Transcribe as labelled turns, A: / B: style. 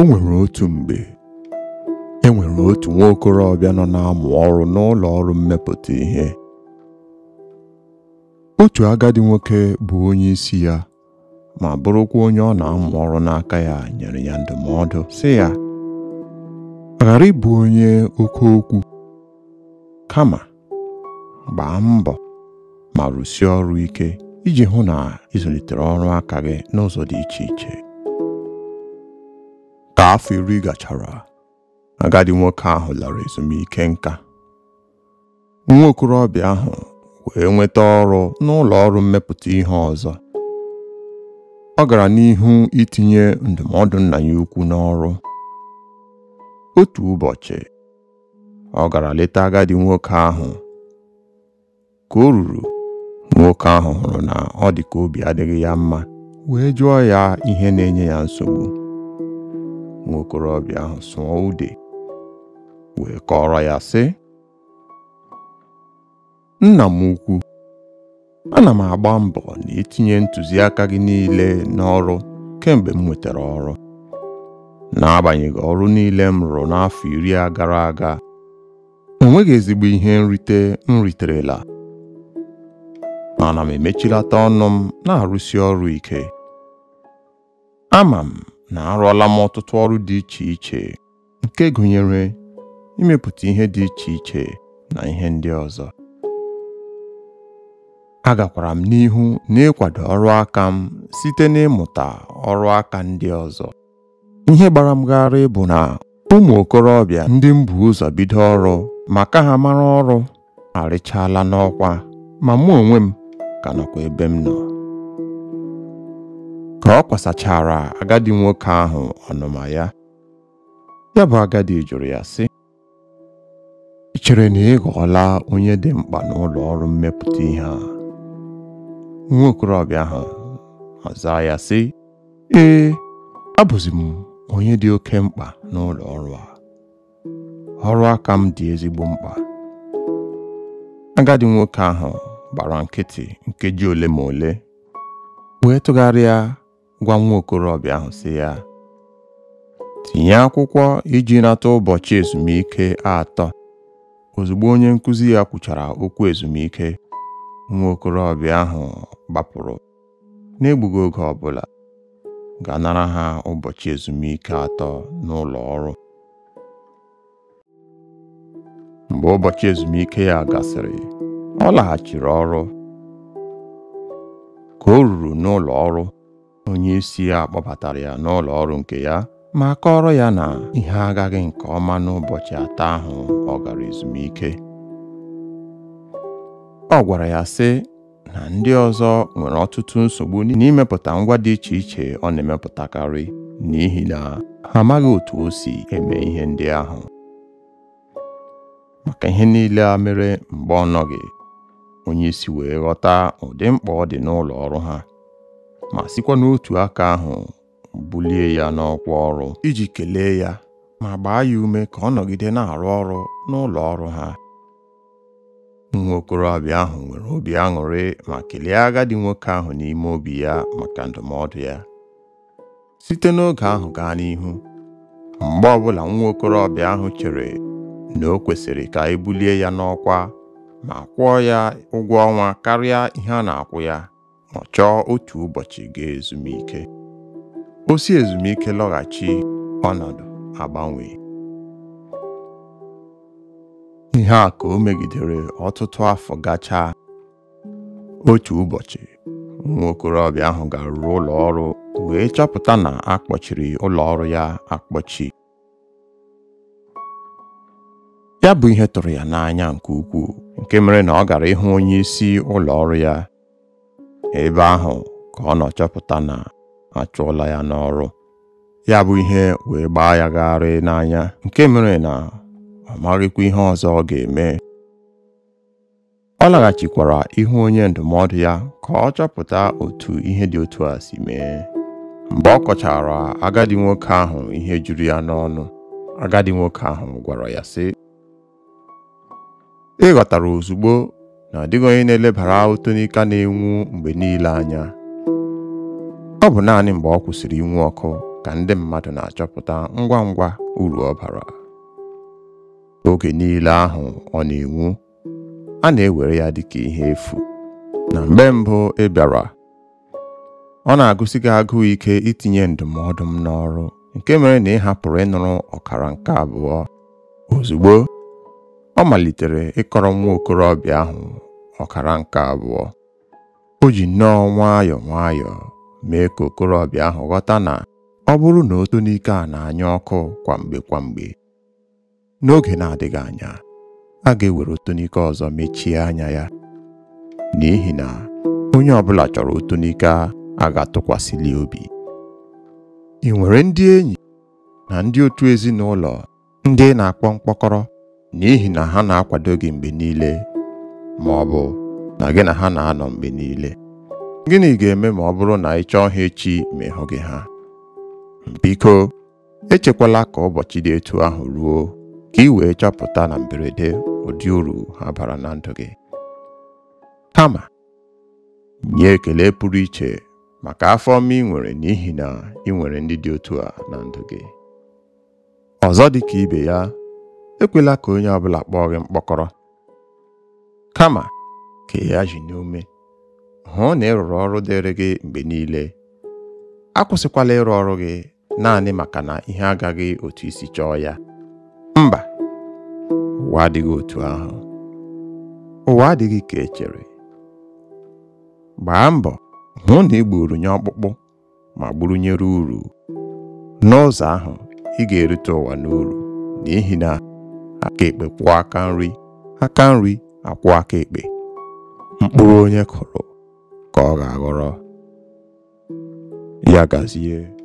A: o nwere otu mgbe e nwere otu nwa okorobịa nọ na-amụ ọrụ n'ụlọ ọrụ mmepụta ihe otu agadi nwoke bụ onye isi ya ma bụrụkwa onye ọ na-amụ ọrụ n'aka ya nyere ya ndụmọdụ sị ya ghara ịbụ onye oke okwu kama gbaa mbọ ma rụsie ọrụ ike iji hụ na ịzụlitere ọrụ aka gị n'ụzọ dị iche iche afọ iri gachara agadi nwoke ahụ lara ezumike nka nwa okorobịa ahụ wee nweta ọrụ n'ụlọ ọrụ mmepụta ihe ọzọ ọ gara n'ihu itinye ndụmọdụ nna ya ukwu n'ọrụ otu ụbọchị ọ gara leta agadi nwoke ahụ ka o ruru nwoke ahụ hụrụ na ọ dị ka obi adịghị ya mma wee jụọ ya ihe na-enye ya nsogbu Nwokorobịa ahụ sụọ ude wee kọrọ ya sị nna m ukwu ana m agba mbọ na itinye ntụziaka gị niile n'ọrụ kemgbe m nwetara ọrụ n'agbanyeghị ọrụ niile m rụrụ n'afọ iri a gara aga enweghị ezigbo ihe nrite m riterela mana m emechilata ọnụ m na-arụsi ọrụ ike ama m na arụọla m ọtụtụ ọrụ dị iche iche nke gụnyere imepụta ihe dị iche iche na ihe ndị ọzọ agakwara m n'ihu na n'ịkwado ọrụ aka m site n'ịmụta ọrụ aka ndị ọzọ ihe gbara m gharị bụ na ụmụ okorobịa ndị m bu ụzọ bido ọrụ maka ha mara ọrụ arịchaala n'ọkwa ma mụ onwe m ka nọkwa ebe m nọ ka ọ kwasachara agadi nwoke ahụ ọnụma ya ya bụ agadi jụrụ ya sị ị chere na ị ghọọla onye dị mkpa n'ụlọ ọrụ mmepụta ihe a nwa okorobịa ahụ ọza ya sị ee abụzi m onye dị oke mkpa n'ụlọ ọrụ a ọrụ aka m dị ezigbo mkpa agadi nwoke ahụ gbara nkịtị nkeji ole ma ole wee tụgharịa gwa nwa okorobịa ahụ sị ya tinye akwụkwọ iji nata ụbọchị ezumike atọ ozugbo onye nkuzi ya kwuchara okwu ezumike nwa okorobịa ahụ gbapụrụ n'egbughị oge ọbụla ga-anara ha ụbọchị ezumike atọ n'ụlọ ọrụ mgbe ụbọchị ezumike ya gasịrị ọ laghachiri ọrụ ka o ruru n'ụlọ ọrụ Onye isi ya kpọbatara ya n'ụlọ ọrụ nke ya ma ọrụ ya na ihe agaghị nke ọma n'ụbọchị atọ ahụ ọ gara ezumike ọ gwara ya sị na ndị ọzọ nwere ọtụtụ nsogbu n'imepụta ngwa dị iche iche ọ na-emepụtakarị n'ihi na ha amaghị otu o si eme ihe ndị ahụ maka ihe niile a mere mgbe ọ nọghị onye wee ghọta ụdị mkpa ọ dị n'ụlọ ọrụ ha ma sikwa n'otu aka ahụ bulie ya n'ọkwa ọrụ iji kelee ya ma gbaa ya ume ka ọ nọgide na-arụ ọrụ n'ụlọ ọrụ ha nwa okorobịa ahụ nwere obi aṅụrị ma kelee agadi nwoke ahụ n'ime obi ya maka ndụmọdụ ya site n'oge ahụ gaa n'ihu mgbe ọbụla nwa okorobịa ahụ chere na o kwesịrị ka e bulie ya n'ọkwa ma kwụọ ya ụgwọ ọnwa karịa ihe a na-akwụ ya Ọ chọọ otu ụbọchị ga ezumike osi ezumike lọghachi ọnọdụ agbanwe ihe a ka o megidere ọtụtụ afọ gachaa otu ụbọchị nwa okorobịa ahụ ga-arụ ụlọ ọrụ wee chọpụta na akpọchiri ụlọ ọrụ ya akpọchi ya bụ ihe tụrụ ya n'anya nke ukwuu nke mere na ọ gara ịhụ onye ụlọ ọrụ ya ebe ahụ ka ọ nọchọpụta na na ụlọ ya n'ọrụ ya bụ ihe wee gbaa ya gagharị n'anya nke mere na ọ maghịkwa ihe ọzọ ọ ga-eme ọ laghachikwara ihu onye ndụmọdụ ya ka ọ chọpụta otu ihe dị otu a si mee mgbe ọ kọchara agadi nwoke ahụ ihe juru ya n'ọnụ agadi nwoke ahụ gwara ya sị ị ghọtara ozugbo na ọ dịghị onye na-elebara ụtọ n'ika na-enwu mgbe niile anya ọ bụ naanị mgbe ọ kwụsịrị inwu ọkụ ka ndị mmadụ na-achọpụta ngwa ngwa uru ọ bara oge niile ahụ ọ na-enwu a na-ewere ya dị ka ihe efu na mgbe mbụ ị bịara ọ na-agụsi gị agụụ ike itinye ndụmọdụ m n'ọrụ nke mere na ị hapụrụ ịnụrụ ọkara nke abụọ ozugbo ọ malitere ịkọrọ nwa okorobịa ahụ ọkara nke abụọ o ji nnọọ nwayọọ nwayọọ mee ka okorobịa ahụ ghọta na ọ bụrụ na otonike a na-anya ọkụ kwamgbe kwamgbe n'oge na-adịghị anya a ga-ewere otonike ọzọ mechie anya ya n'ihi na onye ọbụla chọrọ otonike a ga-atụkwasịli obi ị nwere ndị enyi na ndị otu ezinụlọ ndị na-akpọ mkpọkọrọ n'ihi na ha na-akwado gị mgbe niile ma ọ bụ na gị na ha na-anọ mgbe niile gịnị ga-eme ma ọ bụrụ na ị chọọ ha echi ma ịhụ gị ha biko echekwala ka ụbọchị dị etu ahụ ruo ka ị wee chọpụta na mberede ụdị uru ha bara na ndụ gị kama nye ekele pụrụ iche maka afọ ọma ị nwere n'ihi na ị nwere ndị dị otu a na ndụ gị ọzọ dị ka ibe ya ekwela ka onye ọ bụla kpọọ gị mkpọkọrọ kama ka ya ji n'ume hụ na ị rụrụ ọrụ dịrị gị mgbe niile akwụsịkwala ịrụ ọrụ gị naanị maka na ihe agaghị otu isi chọọ ya mba ụwa adịghị otu ahụ ụwa adịghị ka echere gbaa mbọ hụ na ị nye ọkpụkpụ ma gburunyere uru n'ụzọ ahụ ị ga-erite ụwa n'uru n'ihi na aka ekpe kwụọ aka nri aka nri akwụọ aka ekpe mkpụrụ onye kụrụ ka ọ ga-aghọrọ ya gazie